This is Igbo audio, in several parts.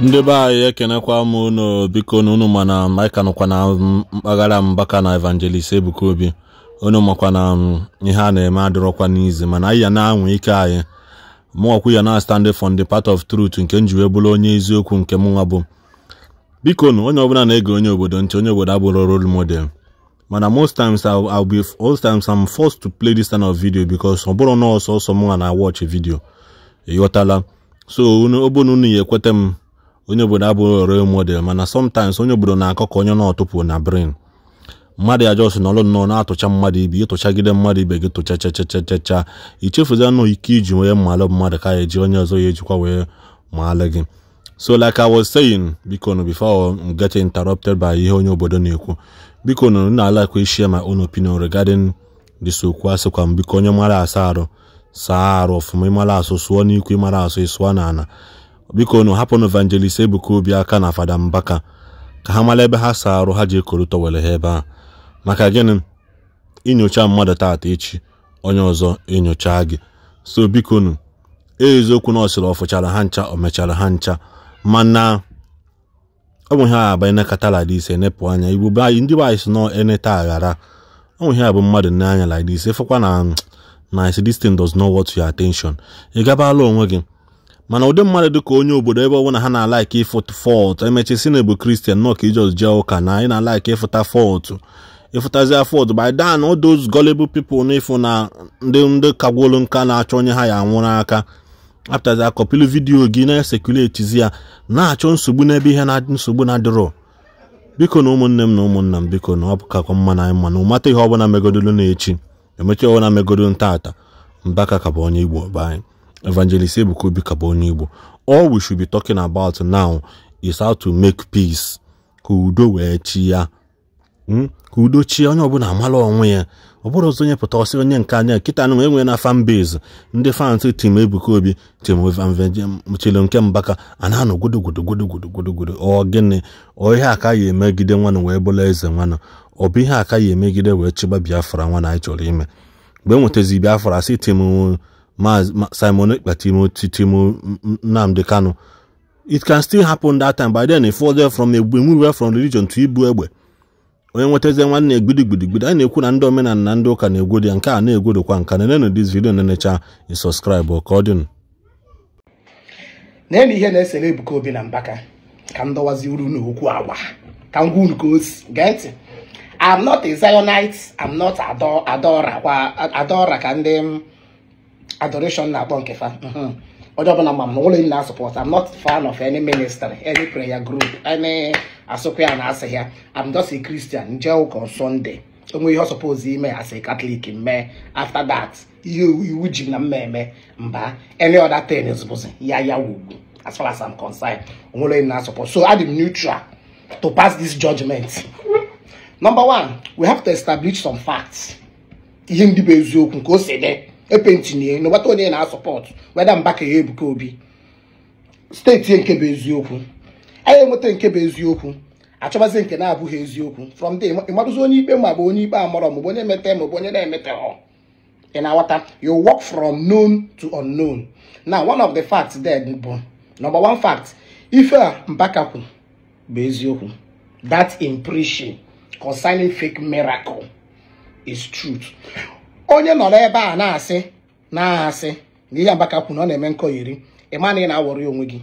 ndị be anyị ekenekwa m unu biko na unu mana anyị nọkwa na mpaghara mbaka na evangelist ebuka obi unu makwa na um, ihe a na-eme adịrọkwa n'izi mana anyị ya na-anwa ike anyị mụọkwu ya na stand fon the part of truth nke m ji bụrụ onye eziokwu nke mụnwa bụ biko na onye ọbụla na-ege onye obodo ntị onye obodo abụrụ rol model mana most times I'll be most times I'm forced to play this kind of video because ọ bụrụ na ọsọ ọsọ mụnwa na watch video ịghọtala so ọ bụrụ na unu ya ekweta m onye obodo abụghị role model mana sometimes onye obodo na-akọ ka onye na-ọtụpụ na brain mmadụ ya jọs nọrọ nnọọ na-atụcha mmadụ ibe ịtụchagide mmadụ ibe gị tụcha chachachachacha ichefuzi anụ ike iji wee mmalụ mmadụ ka eji onye ọzọ ya ejikwa wee maalụ gị so like I was saying biko nu before I get interrupted by ihe onye obodo na-ekwu biko nu na alakwa share my own opinion regarding this okwu asịkwa m biko onye mara asa arụ saa arụ ọfụma ịmara asụ sụọ n'ikwu ịmara asụ ịsụọ n'ala biko nu hapụnụ evangelist ebuka obi aka na fada mbaka ka ha mara ebe ha saa arụ ha ji ekoro tọwere ha ebe a maka gịnị inyocha mmadụ taata echi onye ọzọ enyocha gị so bikonu nu eziokwu na ọsịrị ọ ha ncha omechara mechara ha ncha mana ọ bụ ihe a abanye nakataladiise enepụ anya igbo be anyị ndị be anyị si nọ eneta aghara ọ bụ ihe a bụ mmadụ nne anya like this ịfụkwa na na this thing does not ị gabala onwe gị mana ụdị mmadụ dị ka onye obodo ebe ọbụla ha na-alaiki ịfụta fọtụ e si na ebu kristian nọọ ka ijọs jee ụka na anyị na-alaiki ịfụta fọtụ ịfụtazi fọtụ by dan those gullible people na ịfụ na ndị ndị kagwolu nka na-achọ onye ha ya anwụrụ aka apụtazi akọpili vidiyo gị na-esekuletizi ya na-achọ nsogbu n'ebe ihe na nsogbu na-adịrọ biko na ụmụnne m na ụmụnna m biko na ọ mma na anyị mana ụmata ihe ọbụla megodolu na echi emechi ọbụla megodolu ntaata mbaka ka bụ onye igbo be Evangelist Ebuka Obi ka bụ onye Igbo all we should be talking about now is how to make peace ka udo wee chi ya hmm? ka onye ọbụla amala onwe ya ọ bụrụ ọzọ onye pụta ọsị onye nke anya nkịta na enwe na fan base ndị fans tim Ebuka Obi tim chelo nke Mbaka a na-anọ ọ gịnị ọ ihe aka ya emegide nwanụ wee bụla eze nwanụ ọ bụ ihe aka ya emegide wee chịba Biafra nwa na anyị chọrọ ime mgbe e nwetazi Biafra sị tim Simon Ekpa Timothy Nnamdi Kanu it can still happen that time by then if further from egbe nwere from religion to ibu egbe onye nwetazi nwanne egbidi anyị na-ekwu na ndị omenala na ndị ụka na-egwodi ya nke a na-egwodokwa nka na nenenu dis video na-enecha isọskraibụ ka ọ dịnụ na-elu ihe na-esere Ebuka Obi na Mbaka ka m dọwazi uru n'okwu agwa ka m gwa unu ka o si gee I'm not a Zionite I'm not adọra kwa adora ka ndị m. adoration na-akpọ nke fa hmm. onye ọbụla ma m na ụlọ na support I'm not fan of any ministry any prayer group any asụkwa ya na asị ya I'm just a Christian jee ụka on Sunday onwe ihe ọsọpozi ime as a Catholic mee after that ihe iwu ji na mmemme mba any other thing bụzi ya ya wugbu as far as I'm concerned onwere na support so adị m neutral to pass this judgment number one we have to establish some facts ihe ndị bụ eziokwu nke o si dị epentinye n'ụgbata onye na-asọpọt weda mba ka ya ebuka obi steeti nke bụ eziokwu anyị enweta nke bụ eziokwu achọbazi nke na-abụghị eziokwu from there ịmadụzi onye ikpe ma bụ onye ikpe amarọ maọbụ onye emete maọbụ onye na-emete ị na-aghọta you work from known to unknown na one of the facts there bụ number one fact ife a mbakakwu bụ eziokwu that impression concerning fake miracle is truth onye nọrọ ebe a na-asị na-asị na ihe Mbaka kwuru na ọ na-eme nkọ iri ịma na ị na-awọrọ onwe gị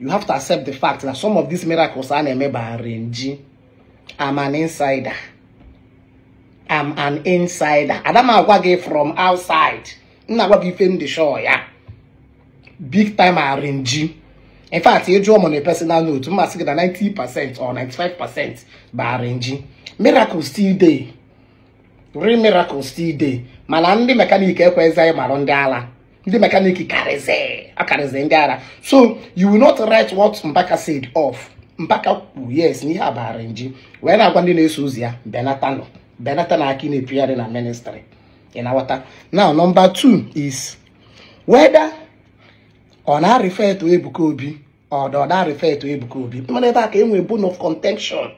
you have to accept the fact that some of these miracles a na-eme bara nji am an insider am an insider agwa gị from outside nna agwa gị ife ndị show ya big time arinji in fact ịjụ ọmụ na personal note mmasị gị na 90% or 95% bụ arinji miracle still dey real miracles still dey mana ndị mekaniki ekwezi anyị marụ ndị ala ndị mekaniki karịzị akarịzị ndị ala so you will not write what Mbaka said off Mbaka kwu yes n'ihe abara nji wee na-agwa ndị na-eso ozi ya benatanọ benata na aka na-epigharị na ministry ịnawata now nọmba two is whether ọ na-arịfe eto Ebuka Obi ọ dị ọ na Ebuka Obi mana ebe a ka enwe bone of contention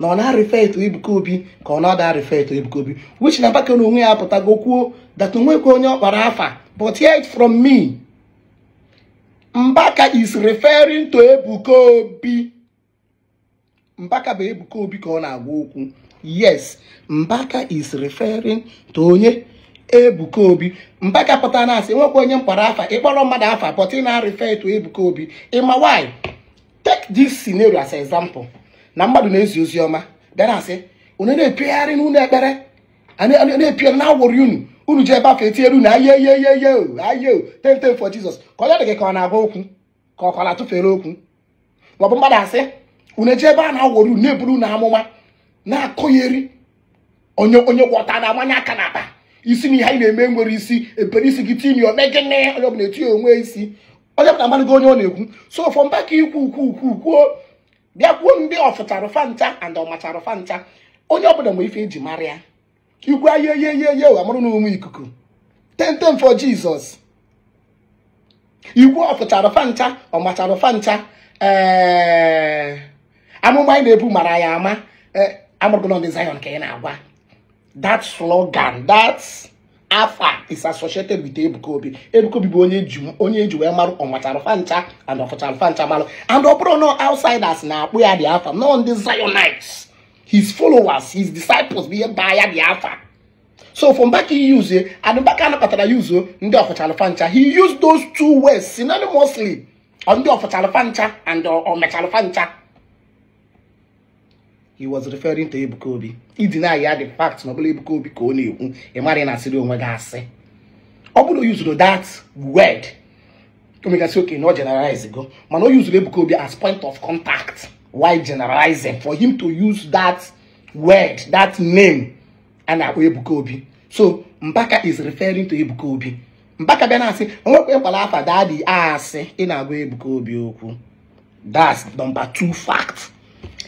na ọ na arife etu Ebuka Obi ka ọ na-ada arịfe etu Ebuka Obi which na Mbaka na onwe ya apụtago kwuo that onwekwa onye ọ kpara afa but hear it from me Mbaka is referring to Ebuka Obi Mbaka bụ Ebuka Obi ka ọ na-agwa okwu yes Mbaka is referring to onye Ebuka Obi Mbaka pụta na asị nwekwa onye mkpara afa ịkpọrọ mmadụ afa but ị na-arịfe etu Ebuka Obi ịma why take this scenario as example na mmadụ na-ezi ozi ọma bịara asị onye na-epegharị n'ụlọ ekpere na-epigharị na awụrụ unu unu ji ebe afọ etinyere unu ayeyeyeye aye tenten for Jesus ka ọ dị ka ọ na-agwa okwu ka ọ ka na-atụfere okwu maọbụ mmadụ asị unu eji ebe a na-awụrụ unu na-eburu unu amụma na-akụgheri onye onye gwọta na-amanye aka na akpa isi na ihe anyị na-eme nwere isi ebere isi gị timi gịnị onye ọbụla etinye onwe isi onye ọbụla amadịgo onye ọ na-ekwu so fọ mba ka ikwu ukwu ukwu kwuo bịa gwuo ndị ọfụtarụfa ncha and ọmacharụfa ncha onye ọbụla ma ife eji mara ya igwe ayeyeyeye amụrụ na ụmụ ikuku tentem for jizọs igwe ọfụtarụfa ncha ọmacharụfa ncha ee eh, amụma anyị na-ebu mara ya ama ee eh, amụrụgụlọ ndị Zion ka ị na-agwa that slogan afa is associated with ebukobi ebukobi bụ onye eji onye eji wee marụ and ọfụcharụfa ncha and ọ bụrụ na outsiders na-akpụ ya dị afa no ndị Zionites his followers his disciples bụ ihe baa ya dị afa so from back he use adịbaka anakpatara ya uzo ndị ọfụcharụfa ncha he used those two words synonymously ndị ọfụcharụfa ncha and ọmecharụfa ncha he was referring to Ebuka Obi ideny ya the fact na ọbụla bụla Ebuka Obi ka ọ na-ekwu ị na asịrị onwe gị asị ọ bụrụ yuzuru usoro that word omegasị oke na ọ generalize go mana o yuzuru Ebuka Obi as point of contact why generalizing for him to use that word that name a na-akpọ Ebuka Obi so Mbaka is referring to Ebuka Obi Mbaka bịa na-asị onwekwa ịkwala afa dadi asị ị na-agwa Ebuka Obi okwu that's number two fact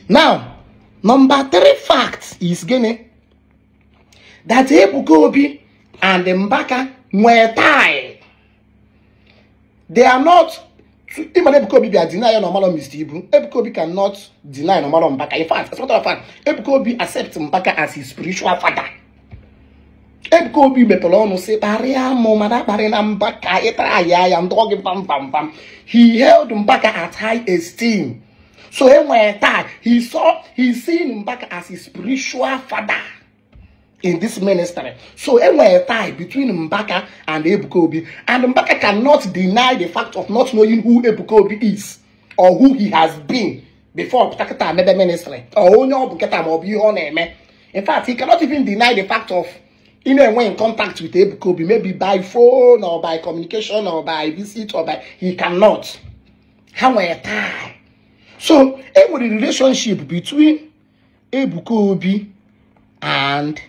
now Number three fact is gịnị? That Ebuka Obi and Mbaka nwere tie. They are not. Even Ebuka Obi bịa deny Omalọ Mr. Ibu. Ebuka Obi cannot deny Omalọ Mbaka. In fact, as a matter of fact, Ebuka Obi accepts Mbaka as his spiritual father. Ebuka Obi mepere ọnụ sị kparịa ma na kparị na Mbaka ịtara ya ya ndụọ bam bam bam He held Mbaka at high esteem. So he one time, he saw, he seen him back as his spiritual father in this ministry. So he when tie between Mbaka and Ebuka and Mbaka cannot deny the fact of not knowing who Ebuka is or who he has been before Takata made the ministry or only Obuketa Obi on In fact, he cannot even deny the fact of in a way in contact with Ebuka Obi, maybe by phone or by communication or by visit or by he cannot. How tie so e nwere relationship between Ebuka Obi and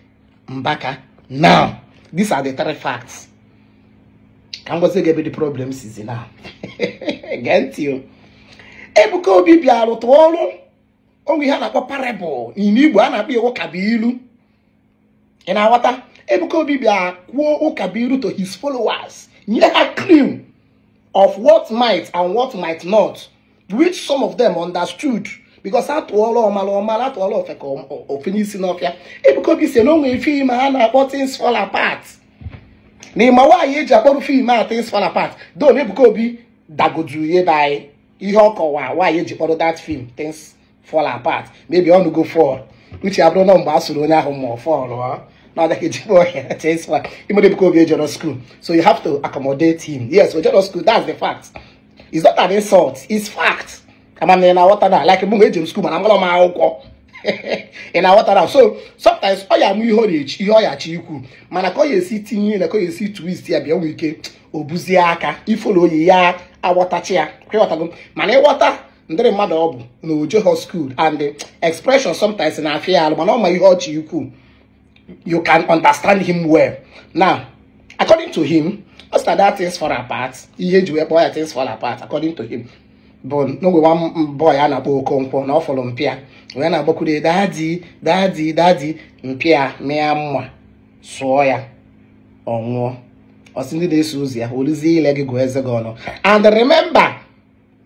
Mbaka now these are the three facts ka m gwazi gị ebe the problem sizi now gee ntị o Ebuka Obi bịa rụtụ ọrụ onwe ihe a na-akpọ parable n'ime Igbo a na-akpọ iwu kabilu ị na-aghọta Ebuka Obi bịa kwuo to his followers nye ha clue of what might and what might not which some of them understood because atụọla ọmala ọmala atụọla ofeka ofe n'isi n'ọfịa ebukobi si na o nwere fim a na-akpọ things fall apart na ịma nwaanyị eji akpọrụ fim a things fall apart don ebukobi dagodu ya ebe anyị ihe wa kọwa nwaanyị ji kpọrọ that film things fall apart maybe ọnụgo fall uche abụrụ na mgbe a sụrụ onye ahụ ma ọ fọlụ things fall ejikwa ọhịa cheswa imere ebukobi ejọrọ school so you have to accommodate him yes ojọrọ school that's the fact is not an insult. It's fact. I'm an in water now. Like a mum school, man. I'm gonna my alcohol. in our water now. So sometimes all your mu age, you are chiku. Man, I call you see tin, I call you see twist here be week. Eh? Obuziaka, ifolo ya, a water chair. Man, I water. ndị mmadụ ọ bụ na ojeho school and the expression sometimes na afia alụ mana ọ ma ihe ọchị ukwu you can understand him well now according to him ọ sị na that things fall apart ihe eji wee kpọọ ya things fall apart according to him bụ n'oge nwa boy a na-akpọ Okonkwo na ọ fọrọ mpịa wee na-agbakwude dadi dadi dadi mpịa mịa mma sụọ ya ọ nwụọ ọsị ndị na-eso ozi ya olizie ile gị gụọ eze gị ọnụ and remember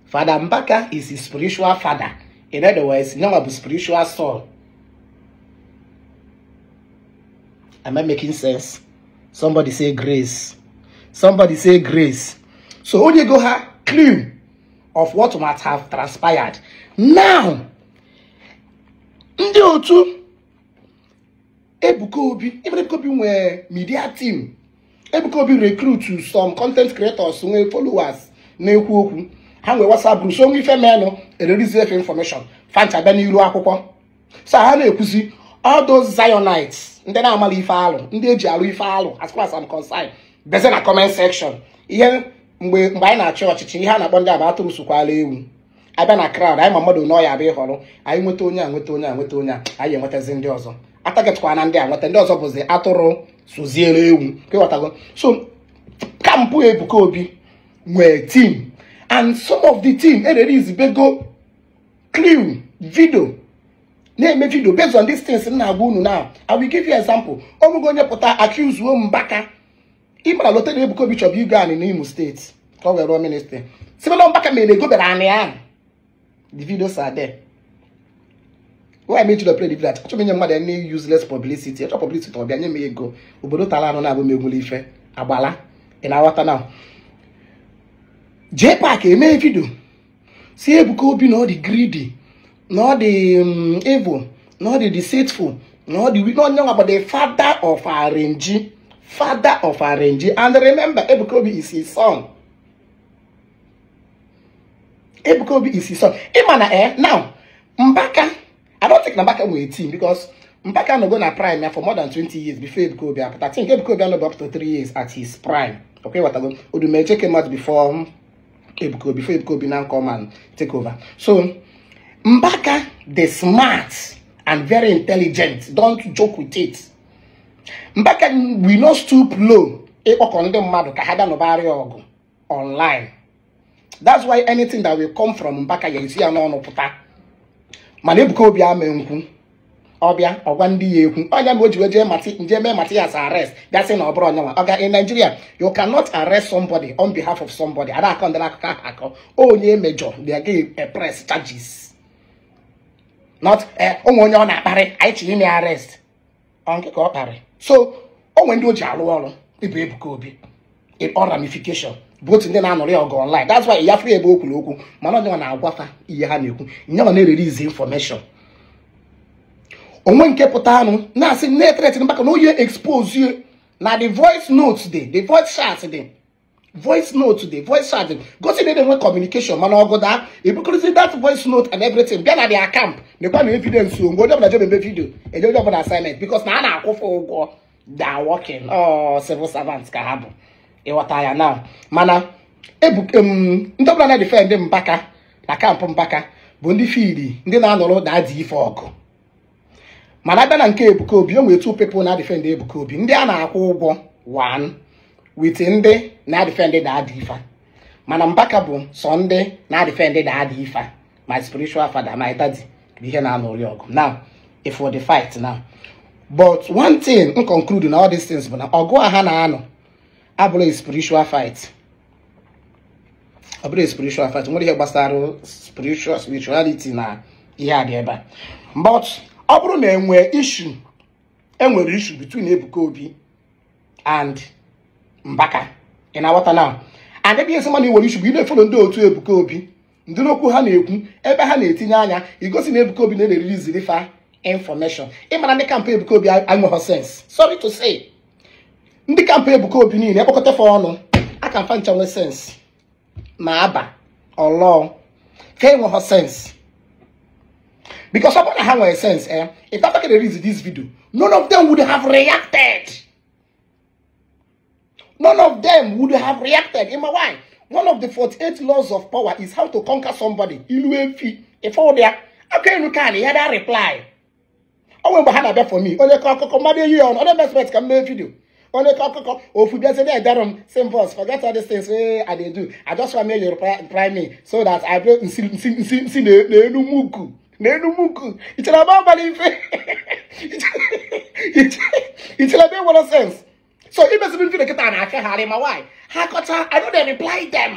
father Mbaka is his spiritual father in other words nyawa bụ spiritual soul am I making sense somebody say grace Somebody say grace. So onye go ha clue of what might have transpired. Now, ndị otu Ebuka Obi, Ebuka media team. Ebuka Obi recruit some content creators nwee followers na-ekwu okwu. Ha nwee WhatsApp group, so onwe ife menụ ererizi efe information. Fanchabịa n'iru akwụkwọ. So ha na-ekwuzi all those Zionites, ndị na-amala ife alụ, ndị eji alụ ife alụ as far as I'm concerned. deze na comment section ihe mgbe mgbe anyị na-achị ọchịchị ihe a na-akpọ ndị aba atụm sokwala ewu abịa na crowd anyị ma mmadụ nọ ya bịa ịhọrọ anyị nweta onye a nweta onye a nweta onye a anyị enwetazi ndị ọzọ atagetịkwa na ndị a nweta ndị ọzọ bụzi atụrụ soziere ewu ịghọtago so kampụ Ebuka Obi nwee team and some of the team ererezibego clue video na-eme video based on these things m na-agwa unu na I will give you example ọ bụghị onye pụta accuse o mbaka ịmara lota na Ebuka Obi chọrọ igo anị n'Imo steeti ka ọ were rụọ ministrị simelọ Mbaka mere egobere anị ahụ the videos are there why me to play the video achọrọ inye mmadụ any useless publicity achọ publicity ọbịa nye m ego obodo tara anụ na-abụ m egwuru ife agbala ị na-aghọta na jee paaki emee vidio si Ebuka Obi na ọ dị gridi na ọ dị um, evil na ọ dị deceitful na ọ dị na onye nwa bụ the father of arịnji father of Arenji. And remember, Ebukobi is his son. Ebukobi is his son. Imana eh, now, Mbaka, I don't think Mbaka will team because Mbaka no go na prime for more than 20 years before Ebukobi. But I think Ebukobi no go up to 3 years at his prime. Okay, what I go. Udumeje came out before Ebukobi, before Ebukobi now come and take over. So, Mbaka, the smart and very intelligent, don't joke with it. Mbaka we no stoop low ịkpọkọ ndị mmadụ ka ha bịa nụbarịa ọgụ online that's why anything that will come from Mbaka ya esi ya n'ọnụ pụta mana Ebuka Obi ama nkwu ọbịa ọgwa ndị ya ekwu onye ma o ji wejee nje mee mati as arrest bịa sị na ọ bụrụ onyenwa ọga in Nigeria you cannot arrest somebody on behalf of somebody ada akọ ndị akụkọ akọ onye mejọ they give a press charges not ụmụ eh, onye ọ na-akparị anyị tinye ime arrest ọ nkịka ọ kparị so o nwere ndị o ji alụ ọrụ ịbụ Ebuka Obi in all ramification both ndị na-anọrị ya ọgụ online that's why ya fụ ebe o kwuru okwu mana onye na-agwafa ihe ha na-ekwu nyewa na-ererizi information onwe nke pụta anụ na-asị na-eteretin maka na oyi expose na the voice note dị the voice chat dị voice note dị voice chat dị gosi na enwe communication mana ọgụ daa ebukọrịzi that voice note and everything bịa na the account lekwa na evidence onwe onye ọbụla jebe eme vidio enye onye ọbụla assignment because na a na-akwụfe ụgwọ da working ọ civil servant ka ha bụ ịghọta ya na mana ebuke ndị ọbụla na-edife ndị mpaka na kampụ mpaka bụ ndị fiili ndị na-anọrọ na-adị ife ọgụ mana abịa na nke ebuka obi o nwere two people na-adịfendị ebuka obi ndị a na-akwụ ụgwọ one wit ndị na-adịfendị da-adị ifa mana mpaka bụ sọ ndị na-adịfendị da-adị ifa my spiritual father my daddy ihe na-anụrị ọgụ now if for the fight now but one thing m conclude na all these things bụ na ọgụ a ha na-anọ abụrụ spiritual fight ọ bụrụ spiritual fight nwere ihe gbasara spiritual spirituality na ihe a ga ebe a but ọ bụrụ na enwee issue enwere issue between Ebuka Obi and Mbaka ị na-aghọta now and ebe ihe sị mana nwere issue bụ ị na otu Ebuka Obi ndị n'okwu ha na-ekwu ebe ha na-etinye anya igosi na Ebuka Obi na-eriri ziri fa information ịmara ndị kampụ Ebuka Obi anweghọ sense sorry to say ndị kampụ Ebuka Obi niile ekpọkọta fa ọnụ aka mfa ncha nwee sense ma aba ọlọọ ka enweghọ sense because ọ bụrụ na ha nwere sense eh if Abubakar release this video none of them would have reacted none of them would have reacted ịma why one of the 48 laws of power is how to conquer somebody ilu efi ifeụbịa aka enu ka anyị ya da reply onwe mgbe behind that for me onye ka akụkọ mmadụ eyi ya ọnụ ọdọ mespet ka m mee vidio onye ka akụkọ ofu bịazi na edara m same voice forget all these things Hey, eh, i dey do i just want make you reply me so that i bring see nsi nsi nsi n'enu muku n'enu muku ichere ebe abalị ife ichere ebe nwere sense so imesibi nkiri nkịta na-akagharị ma nwaanyị ha kọta I no dey reply them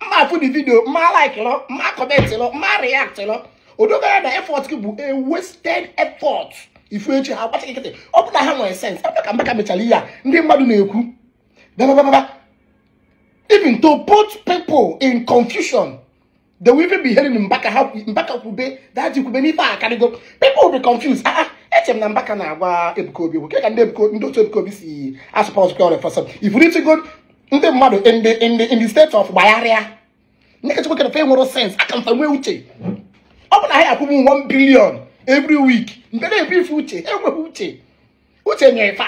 mma afụ di vidio mma like lọ mma comment lọ mma react lọ odogara na effort gị bụ a wasted effort ifu echi ha gbacha nkịtị ọ bụ na ha nwere sense ebe ka Mbaka mechara ihe a ndị mmadụ na-ekwu babababa even to put people in confusion they will even be hearing Mbaka ha Mbaka kwube daji kwube n'ife a karịgo people will be confused ah, ah. eche m na Mbaka na-agwa Ebuka bụ ke ka ndị otu Ebuka Obi si asụpa ọzụkwa ọrịa ifuru ifuritigo ndị mmadụ ndị steeti of gbagharịa ndị kachakwa kere fe nwere sens aka mfa nwee uche ọ bụ na ha akwụbụ 1 bilion every week mgbe na ife uche enweghị uche uche nyere fa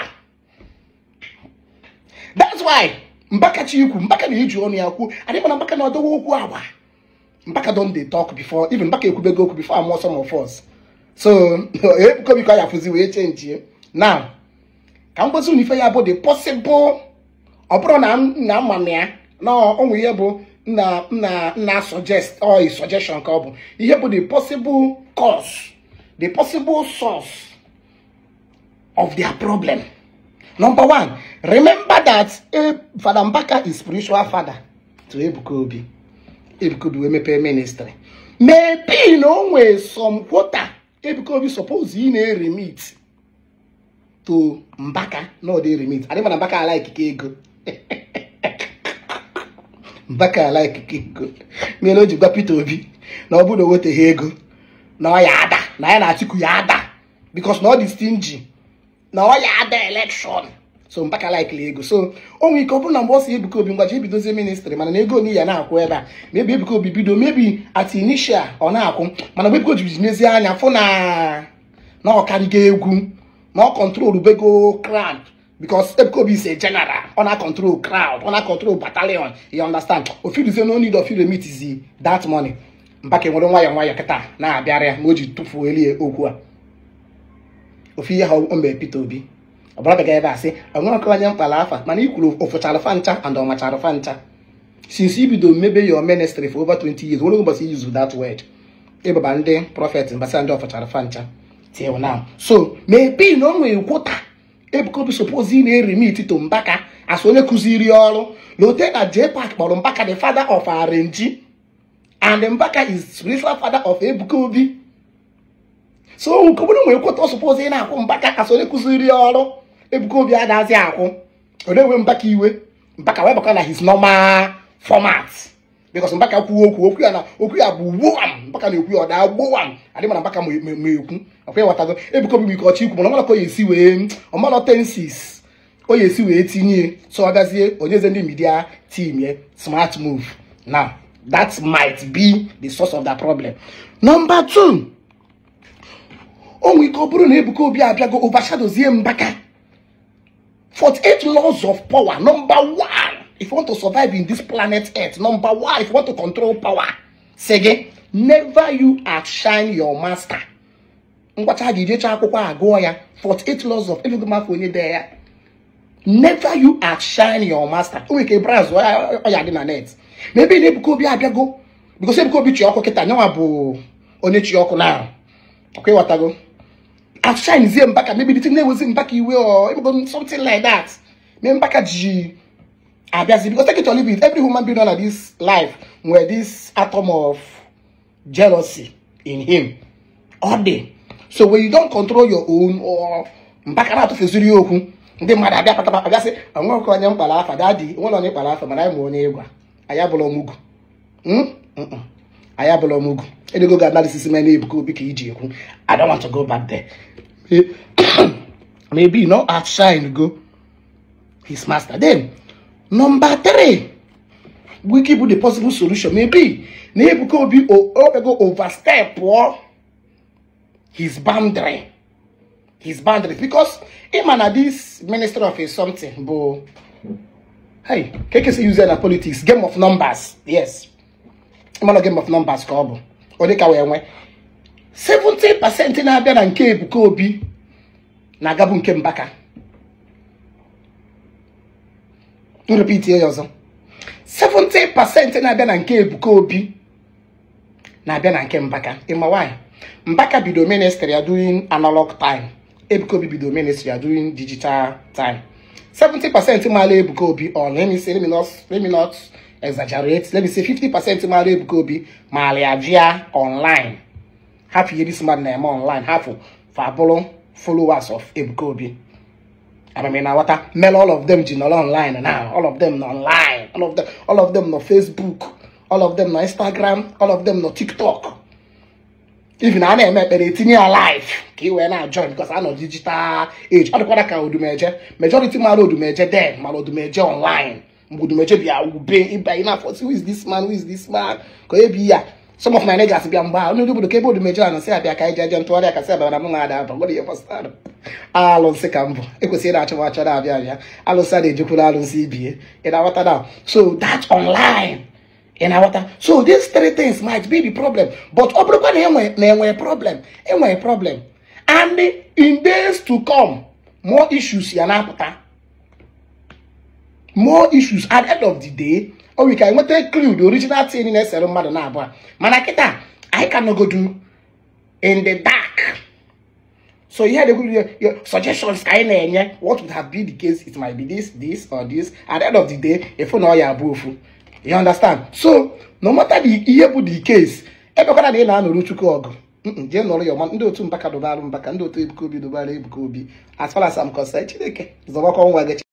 that's why Mbaka Chikwu Mbaka na-eji ọnụ ya kwuo anyị mana Mbaka na-adowe okwu agba Mbaka don dey talk before even Mbaka ekwubego okwu before amụọ some of us so ebukobi eh, ka ya fụzi wee chenji na ka m gosi unu ife ya bụ the possible ọ bụrụ na ama m eh? ya na onwe ihe bụ nna nna nna suggest or suggestion ka ọ bụ ihe bụ the possible cause the possible source of their problem number one remember that eh, Fada Mbaka is spiritual father to ebukobi ebukobi wee mepee ministry maybe na onwe nwee some water Ebuka Obi suppose ị na-eremit to Mbaka not eremit adị na Mbaka ala ikike ego Mbaka ala ikike ego mere o ji gwa Peter Obi na ọ bụrụ na o ego na ọ ya ada na ya na Atiku ya ada because na ọ dị stingy na ọ ya ada election so mpaka likely ego so onwe ike ọ bụrụ na mgbe ọ si Ebuka Obi ngwaji ebidozie ministri mana na ego na ya na-akwụ ebe a mebi Ebuka Obi bido mebi at ọ na-akwụ mana mgbe Ebuka Obi mezie anya fụ na na egwu na ọ kọntrol bego crowd because Ebuka Obi is a general ọ na-akọntrol crowd ọ na-akọntrol battalion you ọndastan ofiduzie no need of remit that money mpaka nwere nwayọ nwayọọ kịta na-abịara ya ma o ji tụfuo elie okwu a ofu ihe ha o mbe Peter Obi ọbara bịaga ebe a sị enwere ọkọwanye mkpala afa mana i kwuru ofụchara fa ncha and ọmachara fa ncha since ibido mebe your ministry for over 20 years nwere ụbọchị use that word ịbaba ndị prọfet mbasa ndị ọfụchara fa ncha till na so maybe na o nwere ebukobi suppose na-erimit to mbaka as onye kụziri ọrụ na ote na jpak kpọrọ mbaka the father of rng and mbaka is spiritual father of ebukobi so obodo nwere kwụta suppose na-akwụ mbaka as onye kụziri ọrụ ebukobi Obi adazi akwụ ọ na Mbaka iwe Mbaka wee na his normal format because Mbaka kwuo okwu okwu ya na okwu ya bụ gbowam Mbaka na-ekwu ya ọ daa gbowam adị mana Mbaka ma ekwu akwa ya watago Ebuka Obi ike ọchị ikwu mana ọmalaka oyi esi wee ọmalotensis oyi esi wee tinye so ọ gazie onyeze ndị midia team ya smart move na that might be the source of that problem number two onwe ike ọ bụrụ na Ebuka Obi abịago overshadozie Mbaka 48 laws of power. Number one, if you want to survive in this planet Earth, number one, if you want to control power, say again, never you outshine your master. Ngwacha gijecha akwụkwọ agụọ ya 48 laws of elugo onye Never you outshine your master. Maybe because onye afsha nzie mbaka maybe the thing name was mbaka iwe or something like that me mbaka ji abiazi because take it or leave it every human being on this life where this atom of jealousy in him all day so when you don't control your own or mbaka na atụfeziri okwu ndị mmadụ abịa patapa abịa sị nwa oke onye mkpara afa dadi nwe na onye mkpara afa mana anyị ma onye ịgwa anyị abụrụ ọmụgwụ hmm? ayabụla m ugwu edego ga-adarisisi m na-ebuka I don't want to go back there maybe not know outshine go his master then number three keep with the possible solution maybe maybe could be overstep or oh. his boundary his boundary because him and this minister of his something but hey KKC user na politics game of numbers yes monogam of numbers ka ọ bụ ụdị ka wee nwee 70% na-abịa na nke Ebuka Obi na-agabu nke Mbaka nrepiti ya ọzọ 70% na-abịa na nke Ebuka Obi na-abịa na nke Mbaka ịma nwanyị Mbaka bido ministry ya during analog time Ebuka Obi bido ministry ya during digital time 70% maala Ebuka Obi on let me say let exaggerate let me say fifty percent of my mara ebuka obi maliajia online half ihe this man na online half of, abụrụ followers of ebuka obi amami na wata mel all of them ji nọrọ online now all of them na online all of them all of them na facebook all of them na instagram all of them na tiktok even a na-eme ekpere etinye ya live ka ị wee na because a nọ digital age I don't ọ dịkwara do major. majority do major. mara odumeje den do major online mgbudu meche bịa ube ịba ị na-afọsi who is this man who is this man ka onye a some of my niggas bịa mgbe onye obodo ka ebe odu meche anụ sị ka anyị jeje ntụgharị aka sị abịa na m na-ada aba ka mbụ ekwesịrị na-achọ achọ na-abịa abịa alụsị a na-ejekwuru alụsị ibie ị na so online ị na so these three things might be the problem but ọ bụrụkwa na enwere problem enwere problem and in days to come more ya na more issues at the end of the day or we can nweta clue the original thing na-esere mmadụ na abụọ mana kịta anyị ka nọgodu in the dark so ihe dịkwuru your suggestions ka enye what would have been the case it might be this this or this at the end of the day efu na ọya abụ ofu you understand so no matter the ihe bụ the case ebekwana na ị na-anọrụ chukwu ọgụ jee nọrọ ya ọma ndị otu mbaka dụbara mbaka ndị otu ebuka obi ebuka obi as far as I'm concerned